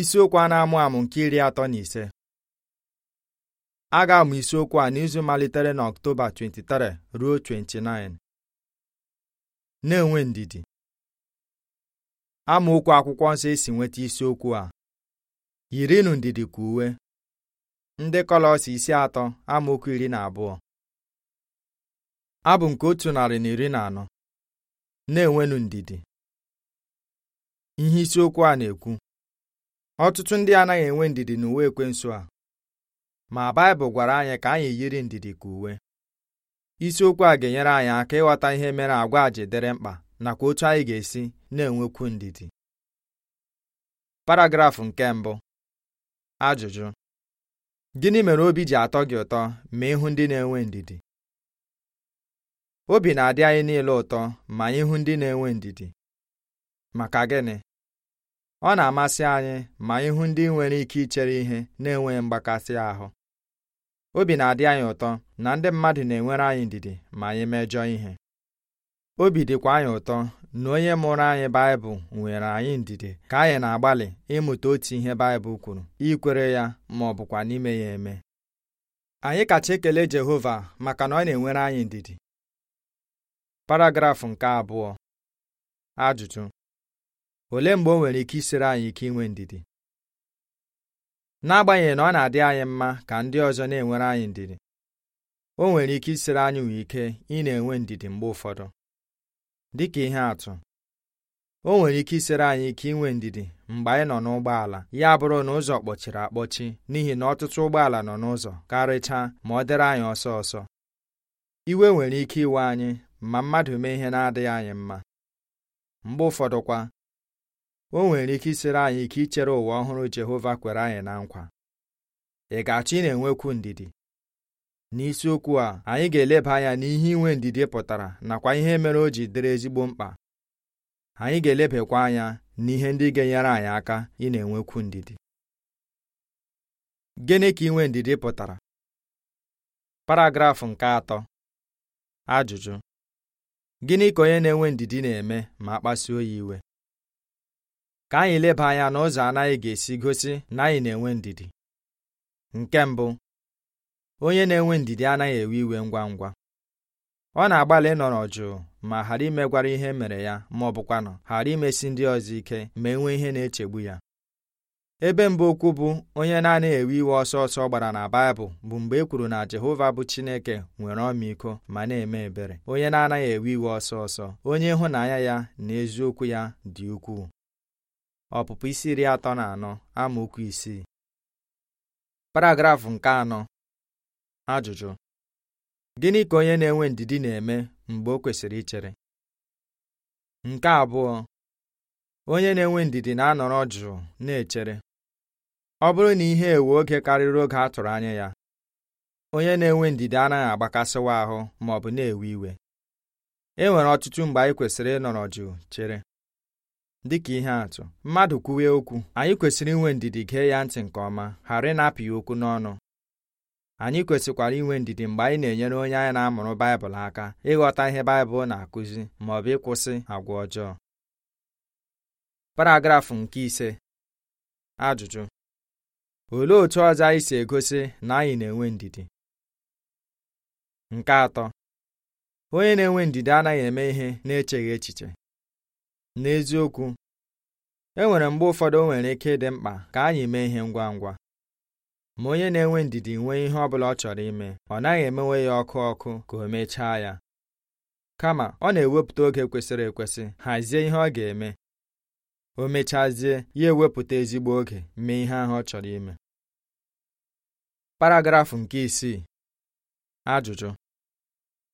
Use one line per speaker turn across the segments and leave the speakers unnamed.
isiokwu a na-amụ amụ nke iri atọ na ise a ga-amụ isiokwu a n'izu malitere na Ọktoba 23 ruo 29 na-enwe ndidi amaokwu akwụkwọ nsọ esi nweta isiokwu a yirinụ ndidi ka uwe ndị Kọlọs isi atọ amaokwu iri na abụọ abụ nke otu narị na iri na anọ na enwenu ndidi ihe isiokwu a na-ekwu ọtụtụ ndị anaghị enwe ndidi n'uwe ekwensu a ma Baịbụl gwara anyị ka anyị yiri ndidi ka uwe isiokwu a ga-enyere anyị aka ịghọta ihe mere agwa ji dịrị mkpa nakwa otu anyị ga-esi na-enwekwu ndidi paragrafụ nke mbụ ajụjụ gịnị mere obi ji atọ gị ụtọ ma ịhụ ndị na-enwe ndidi obi na-adị anyị niile ụtọ ma anyị hụ ndị na-enwe ndidi maka gịnị ọ na-amasị anyị ma ịhụ ndị nwere ike ichere ihe na-enweghị mgbakasị ahụ obi na-adị anyị ụtọ na ndị mmadụ na-enwere anyị ndidi ma anyị mejọọ ihe obi dịkwa anyị ụtọ na onye mụrụ anyị Baịbụl nwere anyị ndidi ka anyị na-agbalị ịmụta otu ihe Baịbụl kwuru ikwere ya ma ọ bụkwa n'ime ya eme anyị kacha ekele Jehova maka na ọ na-enwere anyị ndidi paragrafụ nke abụọ ajụjụ olee mgbe o nwere ike isiri anyị ike inwe ndidi n'agbanyeghị na ọ na-adị anyị mma ka ndị ọzọ na-enwere anyị ndidi o nwere ike isiri anyị nwee ike ị na-enwe ndidi mgbe ụfọdụ dị ka ihe atụ o nwere ike isiri anyị ike inwe ndidi mgbe anyị nọ n'ụgbọala ya bụrụ na ụzọ kpọchiri akpọchi n'ihi na ọtụtụ ụgbọala nọ n'ụzọ karịchaa ma ọ dịrị anyị ọsọ ọsọ iwe nwere ike iwe anyị ma mmadụ mee ihe na-adịghị anyị mma mgbe ụfọdụkwa o nwere ike isere anyị ike ichere ụwa ọhụrụ Jehova kwere anyị na nkwa ị ga-achọ ị na-enwekwu ndidi n'isiokwu a anyị ga-eleba anya n'ihe inwe ndidi pụtara nakwa ihe mere o ji dịrị ezigbo mkpa anyị ga-elebakwa anya n'ihe ndị ga-enyere anyị aka ị na-enwekwu ndidi gịnị ka inwe ndidi pụtara paragrafụ nke atọ ajụjụ gịnị ka onye na-enwe ndidi na-eme ma a kpasuo ya iwe ka anyị leba anya n'ụzọ anaghị ga-esi gosi na anyị na-enwe ndidi nke mbụ onye na-enwe ndidi anaghị ewe iwe ngwa ngwa ọ na-agbalị ịnọrọ jụụ ma ghara imegwara ihe mere ya ma ọ bụkwanụ ghara imesi ndị ọzọ ike ma enwe ihe na-echegbu ya ebe mbụ okwu bụ onye na-anaghị ewe iwe ọsọ ọsọ gbara na Baịbụl bụ mgbe e kwuru na Jehova bụ Chineke nwere ọmịiko ma na-eme ebere onye na-anaghị ewe iwe ọsọ ọsọ onye ịhụnanya ya na eziokwu ya dị ukwuu ọpụpụ isi iri atọ na anọ amaokwu isii paragrafụ nke anọ ajụjụ gịnị ka onye na-enwe ndidi na-eme mgbe o kwesịrị ichere nke abụọ onye na-enwe ndidi na-anọrọ jụụ na-echere ọ bụrụ na ihe ewe oge karịrị oge a tụrụ anya ya onye na-enwe ndidi anaghị agbakasịwa ahụ ma na-ewe iwe e nwere ọtụtụ mgbe anyị kwesịrị ịnọrọ jụụ chere dịka ihe atụ mmadụ kwuwe okwu anyị kwesịrị inwe ndidi gee ya ntị nke ọma ghara ịnapụ ya okwu n'ọnụ anyị kwesịkwara inwe ndidi mgbe anyị na-enyere onye anyị na-amụrụ Baịbụl aka ịghọta ihe Baịbụl na-akụzi ma ọ bụ ịkwụsị agwa ọjọọ paragrafụ nke ise ajụjụ olee otu ọzọ anyị si egosi na anyị na-enwe ndidi nke atọ onye na-enwe ndidi anaghị eme ihe na-echeghị echiche n'eziokwu e nwere mgbe ụfọdụ o nwere ike ịdị mkpa ka anyị mee ihe ngwa ngwa ma onye na-enwe ndidi nwee ihe ọ bụla ọ chọrọ ime ọ naghị emewe ya ọkụ ọkụ ka o mechaa ya kama ọ na-ewepụta oge kwesịrị ekwesị hazie ihe ọ ga-eme o mechazie ya ewepụta ezigbo oge mee ihe ahụ ọ chọrọ ime paragrafụ nke isii ajụjụ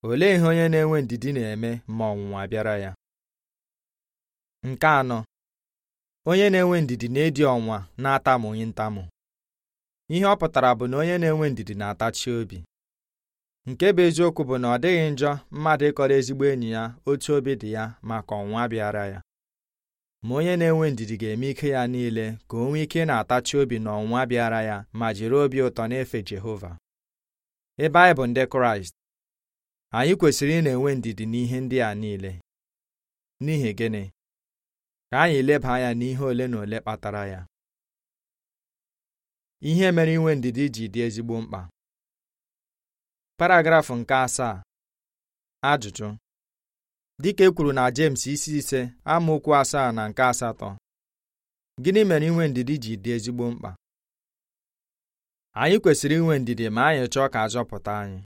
olee ihe onye na-enwe ndidi na-eme ma ọnwụnwa bịara ya nke anọ onye na-enwe ndidi na-edi ọnwa na-atamu ntamu ihe ọ pụtara bụ na onye na-enwe ndidi na-atachi obi nke bụ eziokwu bụ na ọ dịghị njọ mmadụ ịkọrọ ezigbo enyi ya otu obi dị ya maka ọnwa bịara ya ma onye na-enwe ndidi ga-eme ike ya niile ka o nwee ike na-atachi obi na ọnwa bịara ya ma jiri obi ụtọ na-efe Jehova ebe anyị bụ ndị Kraịst anyị kwesịrị ị na-enwe ndidi n'ihe ndị a niile n'ihi gịnị ka anyị leba anya n'ihe ole na ole kpatara ya ihe mere inwe ndidi ji dị ezigbo mkpa paragrafụ nke asaa ajụjụ dịka e kwuru na James isi ise amaokwu asaa na nke asatọ gịnị mere inwe ndidi ji dị ezigbo mkpa anyị kwesịrị inwe ndidi ma anyị chọọ ka a anyị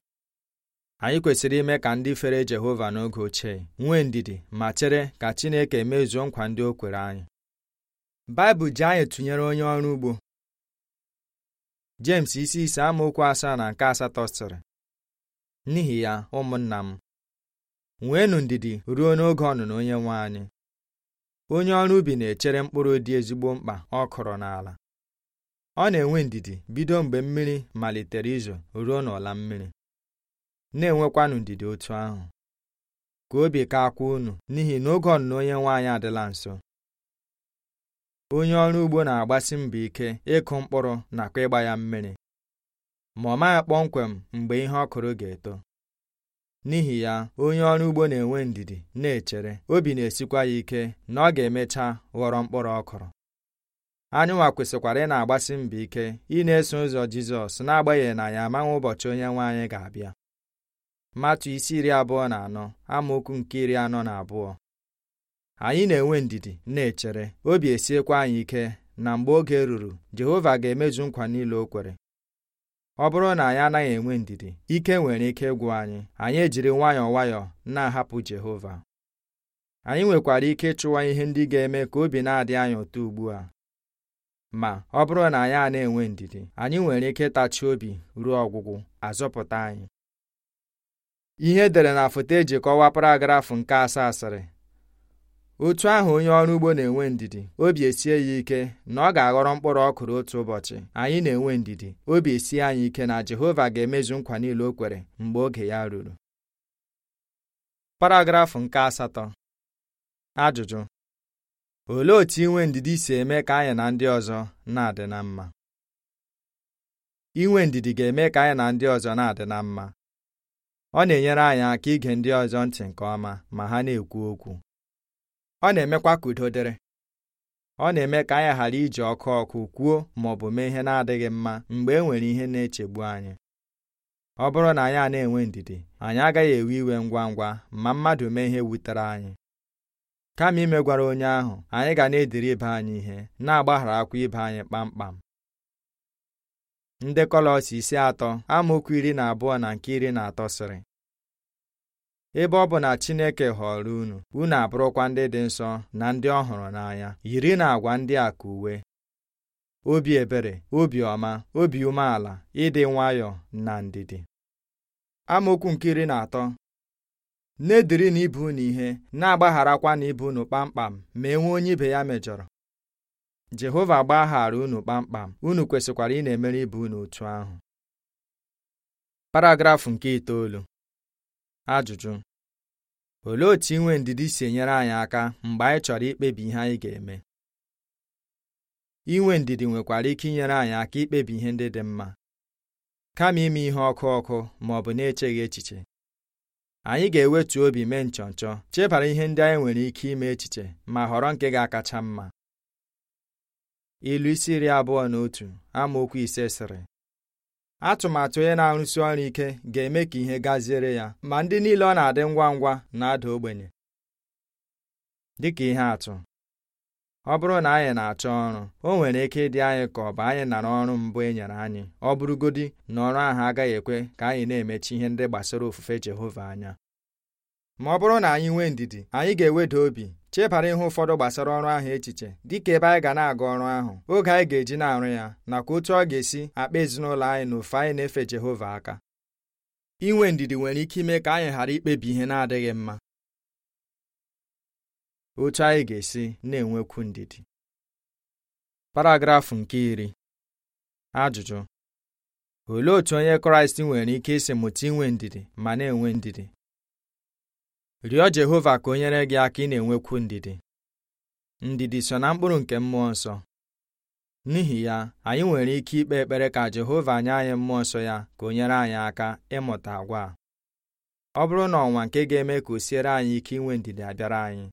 anyị kwesịrị ime ka ndị fere Jehova n'oge ochie nwee ndidi ma chere ka Chineke mezuo nkwa ndị o kwere anyị Baịbụl ji anyị tụnyere onye ọrụ ugbo James isi ise amaokwu asaa na nke asatọ sịrị n'ihi ya ụmụnna m nweenụ ndidi ruo n'oge ọnụnọ onye nwe anyị onye ọrụ ubi na-echere mkpụrụ dị ezigbo mkpa ọ kụrụ n'ala ọ na-enwe ndidi bido mgbe mmiri malitere izo ruo n'ọla mmiri na-enwekwanụ ndidi otu ahụ ka obi ka akwa unu n'ihi na oge ọnụna onye nwaanyị adịla nso onye ọrụ ugbo na-agbasi mbọ ike ịkụ mkpụrụ nakwa ịgba ya mmiri ma ọ maghị kpọmkwem mgbe ihe ọ kụrụ ga-eto n'ihi ya onye ọrụ ugbo na-enwe ndidi na-echere obi na-esikwa ya ike na ọ ga-emecha ghọrọ mkpụrụ ọ kụrụ anyịnwa kwesịkwara ị na-agbasi mbọ ike ị na-eso ụzọ Jizọs n'agbanyeghị na ya amaghị ụbọchị onye nwe anyị ga-abịa matu isi iri abụọ na anọ amaokwu nke iri anọ na abụọ anyị na-enwe ndidi na-echere obi esiekwa anyị ike na mgbe oge ruru Jehova ga-emezu nkwa niile o kwere ọ bụrụ na anyị anaghị enwe ndidi ike nwere ike ịgwụ anyị anyị ejiri nwayọọ nwayọọ na-ahapụ Jehova anyị nwekwara ike ịchụwa ihe ndị ga-eme ka obi na-adị anyị ụtọ ugbu a ma ọ bụrụ na anyị a na-enwe ndidi anyị nwere ike ịtachi obi ruo ọgwụgwụ azọpụta anyị ihe edere na foto eji kọwaa paragrafụ nke asaa asịrị otu ahụ onye ọrụ ugbo na-enwe ndidi obi esie ya ike na ọ ga-aghọrọ mkpụrụ ọ otu ụbọchị anyị na-enwe ndidi obi esie anyị ike na Jehova ga-emezu nkwa niile o kwere mgbe oge ya ruru paragrafụ nke asatọ ajụjụ olee otu inwe ndidi si eme ka anyị na ndị ọzọ na-adị na mma inwe ndidi ga-eme ka anyị na ndị ọzọ na-adị na mma ọ na-enyere anyị aka ige ndị ọzọ ntị nke ọma ma ha na-ekwu okwu ọ na-emekwa ka udo dịrị ọ na-eme ka anyị ghara iji ọkụ ọkụ kwuo ma ọ bụ mee ihe na-adịghị mma mgbe e nwere ihe na-echegbu anyị ọ bụrụ na anyị a na-enwe ndidi anyị agaghị ewe iwe ngwa ngwa ma mmadụ mee ihe wutere anyị kama imegwara onye ahụ anyị ga na-ediri ibe anyị ihe na-agbaghara akwa ibe anyị kpamkpam ndị kọlọs isi atọ amaokwu iri na abụọ na nke iri na atọ sịrị ebe ọ bụ na Chineke họrọ unu unu abụrụkwa ndị dị nsọ na ndị ọ hụrụ n'anya yiri na agwa ndị a ka uwe obi ebere obi ọma obi umeala ịdị nwayọọ na ndidi amaokwu nke iri na atọ na-ediri na ibu unu ihe na-agbagharakwa na ibu unu kpamkpam ma e nwee onye ibe ya mejọrọ jehova gbaghara unu kpamkpam unu kwesịkwara ị na-emere ibe unu otu ahụ paragrafụ nke itoolu ajụjụ olee otu inwe ndidi si enyere anyị aka mgbe anyị chọrọ ikpebi ihe anyị ga-eme inwe ndidi nwekwara ike inyere anyị aka ikpebi ihe ndị dị mma kama ime ihe ọkụ ọkụ ma ọ bụ na-echeghị echiche anyị ga-ewetu obi mee nchọnchọ chebara ihe ndị anyị nwere ike ime echiche ma họrọ nke ga-akacha mma ilu isi iri abụọ na otu amaokwu ise sịrị atụmatụ onye na-arụsi ọrụ ike ga-eme ka ihe gaziere ya ma ndị niile ọ na-adị ngwa ngwa na-ada ogbenye dị ka ihe atụ ọ bụrụ na anyị na-achọ ọrụ o nwere ike ịdị anyị ka ọ bụ anyị nara ọrụ mbụ e nyere anyị ọ bụrụgodi na ọrụ ahụ agaghị ekwe ka anyị na-emechi ihe ndị gbasara ofufe Jehova anya ma ọ bụrụ na anyị nwee ndidi anyị ga-eweda obi chebara ihe ụfọdụ gbasara ọrụ ahụ echiche dịka ebe anyị ga na-aga ọrụ ahụ oge anyị ga-eji na-arụ ya nakwa otu ọ ga-esi akpa ezinụlọ anyị na ofe anyị na-efe Jehova aka inwe ndidi nwere ike ime ka anyị ghara ikpebi ihe na-adịghị mma otu anyị ga-esi na-enwekwu ndidi paragrafụ nke iri ajụjụ olee otú onye Kraịst nwere ike isi mụta inwe ndidi ma na-enwe ndidi rịọ Jehova ka o nyere gị aka ị na-enwekwu ndidi ndidi so na mkpụrụ nke mmụọ nsọ n'ihi ya anyị nwere ike ikpe ekpere ka Jehova nye anyị mmụọ nsọ ya ka o nyere anyị aka ịmụta agwa ọ bụrụ na ọnwa nke ga-eme ka o siere anyị ike inwe ndidi abịara anyị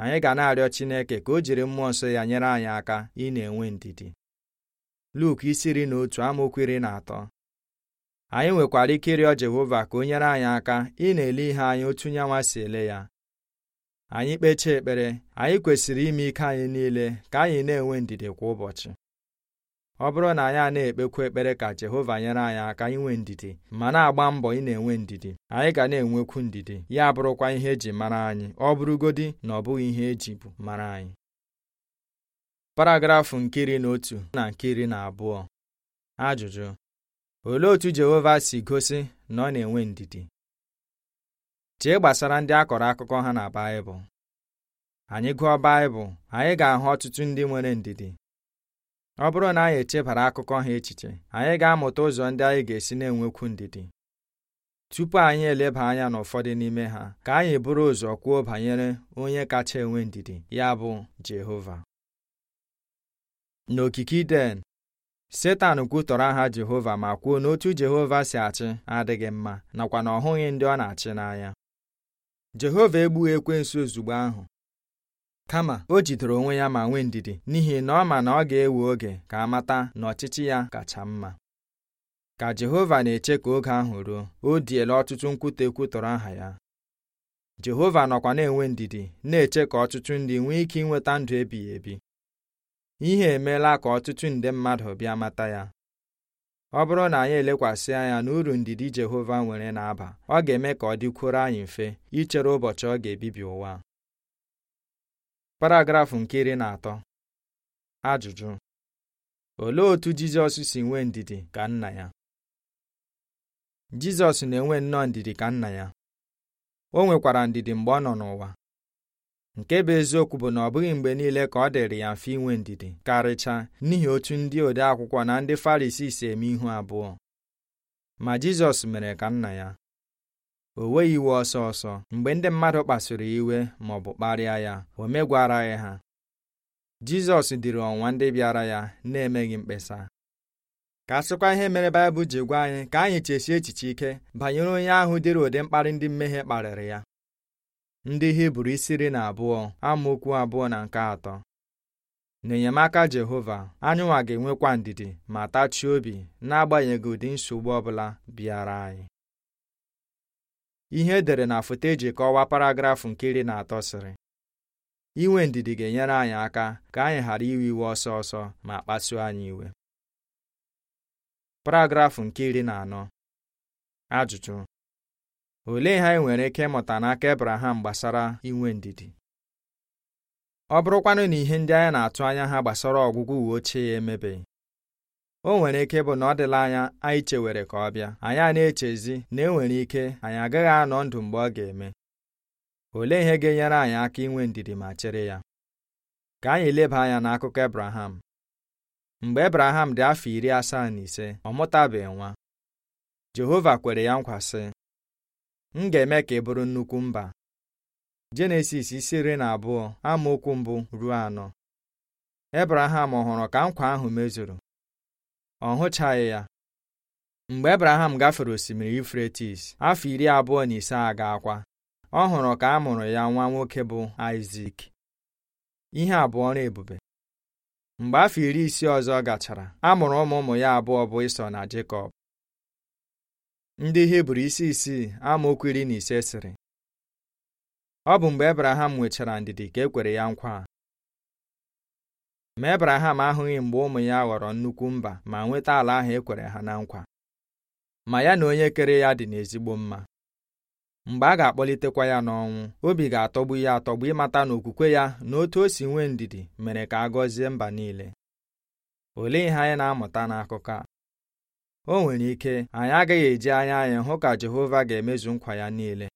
anyị ga na-arịọ Chineke ka o jiri mmụọ nsọ ya nyere anyị aka ị na-enwe ndidi Luk isi ri na otu amaokwu iri na atọ anyị nwekwara ike ịrịọ Jehova ka o nyere anyị aka ị na-ele ihe anyị otu nyanwa si ele ya anyị kpechaa ekpere anyị kwesịrị ime ike anyị niile ka anyị na-enwe ndidi kwa ụbọchị ọ bụrụ na anyị a na-ekpekwa ekpere ka Jehova nyere anyị aka inwe ndidi ma na-agba mbọ ị na-enwe ndidi anyị ga na-enwekwu ndidi ya bụrụkwa ihe eji mara anyị ọ bụrụgodi na ọ bụghị ihe eji bụ mara anyị paragrafụ nke iri na otu na nke iri na abụọ ajụjụ olee otu Jehova si gosi na ọ na-enwe ndidi chee gbasara ndị a kọrọ akụkọ ha na Baịbụl anyị gụọ Baịbụl anyị ga-ahụ ọtụtụ ndị nwere ndidi ọ bụrụ na anyị echebara akụkọ ha echiche anyị ga-amụta ụzọ ndị anyị ga-esi na-enwekwu ndidi tupu anyị eleba anya n'ụfọdụ n'ime ha ka anyị buru ụzọ kwuo banyere onye kacha enwe ndidi ya bụ Jehova n'okike Iden setan kwutọrọ aha jehova ma kwuo n'otu jehova si achị adịghị mma nakwa na ọ hụghị ndị ọ na-achị n'anya jehova egbughị ekwensu ozugbo ahụ kama o jidere onwe ya ma nwee ndidi n'ihi na ọ ma na ọ ga-ewe oge ka a mata na ọchịchị ya kacha mma ka jehova na-eche ka oge ahụ ruo o diela ọtụtụ nkwute kwutọrọ aha ya jehova nọkwa na-enwe ndidi na-eche ka ọtụtụ ndị nwee ike inweta ndụ ebighị ebi ihe emeela ka ọtụtụ nde mmadụ bịa mata ya ọ bụrụ na anyị elekwasị anya na uru ndidi Jehova nwere na-aba ọ ga-eme ka ọ dịkwuoro anyị mfe ichere ụbọchị ọ ga-ebibi ụwa paragrafụ nke iri na atọ ajụjụ olee otú Jizọs si nwee ndidi ka nna ya Jizọs na-enwe nnọọ ndidi ka nna ya o nwekwara ndidi mgbe ọ nọ n'ụwa nke bụ eziokwu bụ na ọ bụghị mgbe niile ka ọ dịrị ya mfe inwe ndidi karịcha n'ihi otu ndị ode akwụkwọ na ndị Farisii si eme ihu abụọ ma Jizọs mere ka nna ya o weghị iwe ọsọ ọsọ mgbe ndị mmadụ kpasuru iwe ma ọ bụ kparịa ya o megwaraghị ha Jizọs dịrị ọnwa ndị bịara ya na-emeghị mkpesa ka asịkwa ihe mere Baịbụl ji gwa anyị ka anyị chesie echiche ike banyere onye ahụ dịrị ụdị mkparị ndị mmehie kparịrị ya ndị hibru isi iri na abụọ amaokwu abụọ na nke atọ n'enyemaka jehova anyụnwa ga-enwekwa ndidi ma tachie obi n'agbanyeghị ụdị nsogbu ọbụla bịara anyị ihe edere na foto eji kọwaa paragrafụ nke iri na atọ sịrị inwe ndidi ga-enyere anyị aka ka anyị ghara iwe iwe ọsọ ọsọ ma kpasuo anyị iwe paragrafụ nke iri na anọ ajụjụ olee ihe anyị nwere ike ịmụta n'aka Ebraham gbasara inwe ndidi ọ bụrụkwanụ na ihe ndị anyị na-atụ anya ha gbasara ọgwụgwụ uwe ochie ya emebeghị o nwere ike ịbụ na ọ dịla anya anyị chewere ka ọ bịa anyị a na-echezi na e nwere ike anyị agaghị anọ ndụ mgbe ọ ga-eme olee ihe ga-enyere anyị aka inwe ndidi ma chere ya ka anyị leba anya n'akụkọ Ebraham mgbe Ebraham dị afọ iri asaa na ise ọ mụtabeghị nwa Jehova kwere ya nkwa sị m ga-eme ka ị bụrụ nnukwu mba Jenesis isi iri na abụọ amaokwu mbụ ruo anọ Ebraham hụrụ ka nkwa ahụ mezuru ọ hụchaghị ya mgbe Ebraham gafere osimiri ifretis afọ iri abụọ na ise a ga-akwa ọ hụrụ ka a mụrụ ya nwa nwoke bụ Aịzik ihe abụọ na ebube mgbe afọ iri isii ọzọ gachara a mụrụ ụmụ ụmụ ya abụọ bụ Ịsọ na Jekọb ndị hibru isi isii amaokwu iri na ise sịrị ọ bụ mgbe ebraham nwechara ndidi ka e kwere ya nkwa a ma ebraham ahụghị mgbe ụmụ ya ghọrọ nnukwu mba ma nweta ala ahụ e kwere ha na nkwa ma ya na onye kere ya dị n'ezigbo mma mgbe a ga-akpọlitekwa ya n'ọnwụ obi ga-atọgbu ya atọgbu ịmata na okwukwe ya na otu o si nwee ndidi mere ka a gọzie mba niile olee ihe anyị na-amụta n'akụkọ a o nwere ike anyị agaghị eji anya anyị hụ ka Jehova ga-emezu nkwa ya niile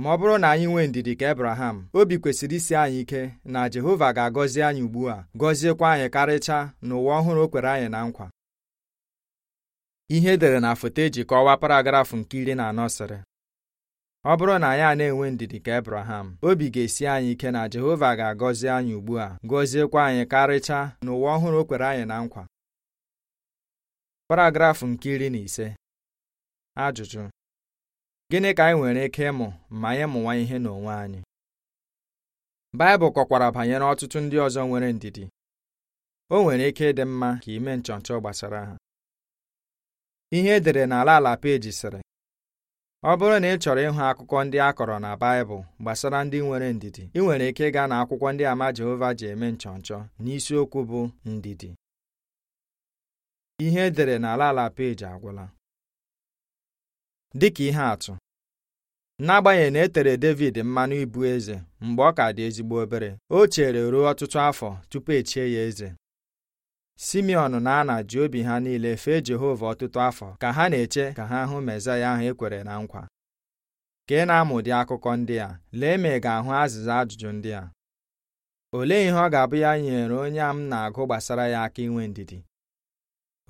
ma ọ bụrụ na anyị nwee ndidi ka Abraham obi kwesịrị isi anyị ike na Jehova ga-agọzi anyị ugbu a gọziekwa anyị karịcha n'ụwa ọhụrụ o kwere anyị na nkwa ihe edere na foto eji kọwaa paragrafụ nke iri na anọ sịrị ọ bụrụ na anyị a na-enwe ndidi ka ebraham obi ga-esi anyị ike na Jehova ga-agọzi anyị ugbu a gọziekwa anyị karịcha n'ụwa ọhụrụ o kwere anyị na nkwa paragrafụ nke iri na ise ajụjụ gịnị ka anyị nwere ike ịmụ ma anyị mụwa ihe n'onwe anyị Baịbụl kọkwara banyere ọtụtụ ndị ọzọ nwere ndidi o nwere ike ịdị mma ka ime nchọnchọ gbasara ha ihe edere n'ala ala peji sịrị ọ bụrụ na ị chọrọ ịhụ akụkọ ndị a kọrọ na Baịbụl gbasara ndị nwere ndidi ị nwere ike ịga na akwụkwọ ndị ama Jehova ji eme nchọnchọ n'isiokwu bụ ndidi ihe edere n'ala ala peji agwụla dịka ihe atụ n'agbanyeghị na e tere David mmanụ ịbụ eze mgbe ọ ka dị ezigbo obere o chere ruo ọtụtụ afọ tupu echie ya eze Simeon na Ana ji obi ha niile fee Jehova ọtụtụ afọ ka ha na-eche ka ha hụ ya ahụ ekwere na nkwa ka ị na-amụ ụdị akụkọ ndị a lee ma ị ga-ahụ azịza ajụjụ ndị a olee ihe ọ ga-abụ ya nyere onye a m na-agụ gbasara ya aka inwe ndidi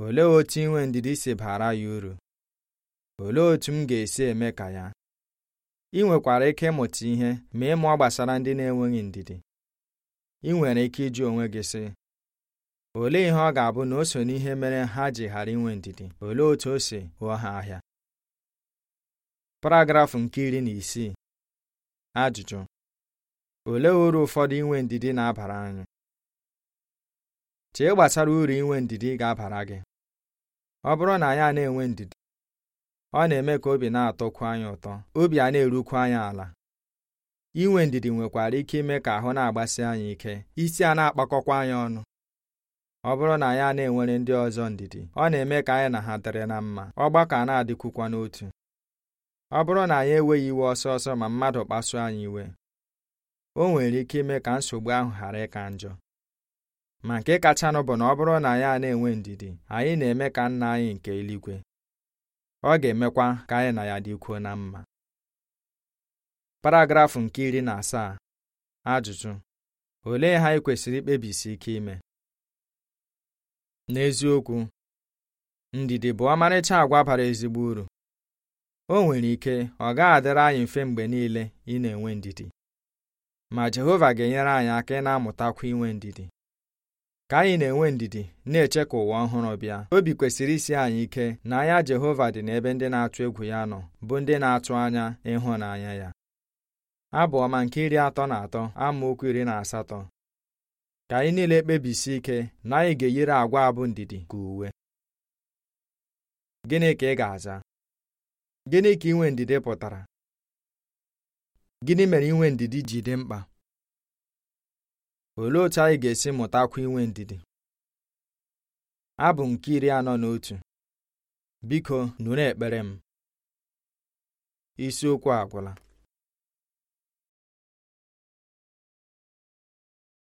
olee otu inwe ndidi si bara ya uru olee otu m ga-esi eme ka ya ị nwekwara ike ịmụta ihe ma ịmụọ gbasara ndị na-enweghị ndidi ị nwere ike ịjụ onwe gị sị olee ihe ọ ga-abụ na o so n'ihe mere ha ji ghara inwe ndidi olee otu o si ghọọ ha ahịa paragrafụ nke iri na isii ajụjụ olee uru ụfọdụ inwe ndidi na-abara anyị chee gbasara uru inwe ndidi ga-abara gị ọ bụrụ na anyị a na-enwe ndidi ọ na-eme ka obi na-atọkwu anyị ụtọ obi a na-erukwu anyị ala inwe ndidi nwekwara ike ime ka ahụ na-agbasi anyị ike isi a na-akpakọkwa anyị ọnụ ọ bụrụ na anyị a na-enwere ndị ọzọ ndidi ọ na-eme ka anyị na ha dịrị na mma ọgbakọ a na-adịkwukwa n'otu ọ bụrụ na anyị enweghị iwe ọsọ ọsọ ma mmadụ kpasuo anyị iwe o nwere ike ime ka nsogbu ahụ ghara ịka njọ ma nke kachanụ bụ na ọ bụrụ na ya na-enwe ndidi anyị na-eme ka nna anyị nke eluigwe ọ ga-emekwa ka anyị na ya dịkwuo na mma paragrafụ nke iri na asaa ajụjụ olee ha anyị kwesịrị ikpebisi ike ime n'eziokwu ndidi bụ ọmarịcha agwa bara ezigbo uru o nwere ike ọ gaghị adịrị anyị mfe mgbe niile ị na-enwe ndidi ma Jehova ga-enyere anyị aka ị na-amụtakwa inwe ndidi ka anyị na-enwe ndidi na-eche ka ụwa ọhụrụ bịa obi kwesịrị isi anyị ike na anya Jehova dị n'ebe ndị na-atụ egwu ya nọ bụ ndị na-atụ anya ịhụnanya ya abụ ọma nke iri atọ na atọ amaokwu iri na asatọ ka anyị niile kpebisi ike na anyị ga-eyiri agwa abụ ndidi ka uwe gịnị ka ị ga-aza gịnị ka inwe ndidi pụtara gịnị mere inwe ndidi ji dị mkpa olee otu anyị ga-esi mụtakwa inwe ndidi abụ nke iri anọ na otu biko nụrụ ekpere m isiokwu agwụla